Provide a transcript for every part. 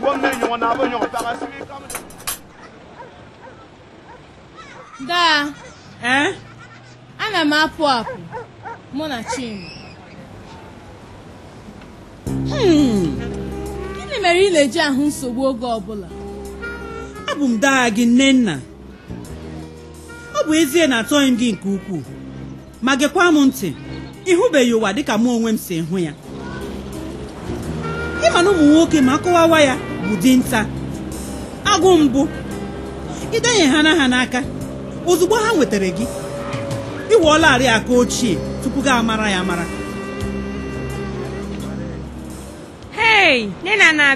ngom na da eh ana m apụ apụ mụ na Chima hmm. gịnị mere ị na-eji ahụ nsogbu oge ọbụla abụ m daa gị nne nna ọ bụ ezie na atọghị m gị nke ukwuu ma gekwa m ntị ịhụbeghị ụwa dịka mụ onwe m si hụ ya ịma na ụmụ nwoke ma kụwawa ya bụ dinta agụ mbụ ịdenye ha na ha n'aka ozugbo ha nwetara gị ịwụọlarị aka ochie tupu gị amara ya amara hei nne na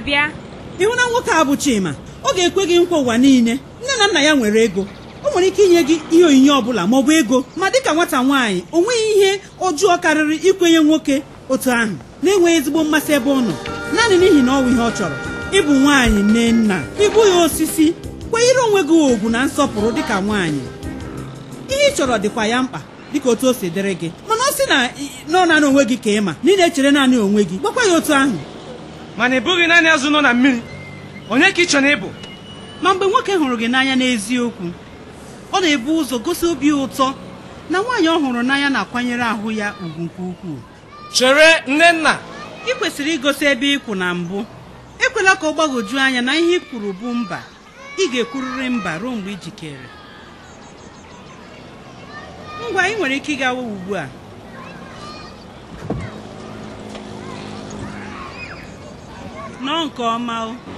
ịhụ na nwoke a bụ Chima ọ ga-ekwe gị nkwa ụwa niile nne na nna ya nwere ego o nwere ike inye gị ihe onyinye ọbụla ma ọ bụ ego ma dịka nwata nwaanyị o nweghị ihe ojuọ karịrị ikwenye nwoke otu ahụ na-enweghị ezigbo mmasị ebe ọ nọ naanị n'ihi na ọ wụ ihe ọ chọrọ ịbụ nwaanyị mee nna ịbụ ya osisi kwanyere onwe gị ogwu na nsọpụrụ dịka nwaanyị ihe ị chọrọ dịkwa ya mkpa dịka otu o si dịrị gị mana ọ sị na nọ naanị onwe gị ka ị ma na ị na-echere naanị onwe gị gwakwa ya otu ahụ mana ị bụghị naanị azụ nọ na mmiri onye ka ị chọrọ ịbụ ma mgbe nwoke hụrụ gị n'anya n'eziokwu ọ na-ebu ụzọ gosi obi ụtọ na nwaanyị ọ hụrụ n'anya na-akwanyere ahụ ya ugwu nke ukwuu chere nnenna ị kwesịrị igosi ebe ịkwụ na mbụ ekwela ka ọ gbagwoju anya na ihe ị kwuru bụ mba ị ga-ekwurịrị mba ruo mgbe i jikere ngwa ị nwere ike ịgawa ugbu a Nọ nke ọma o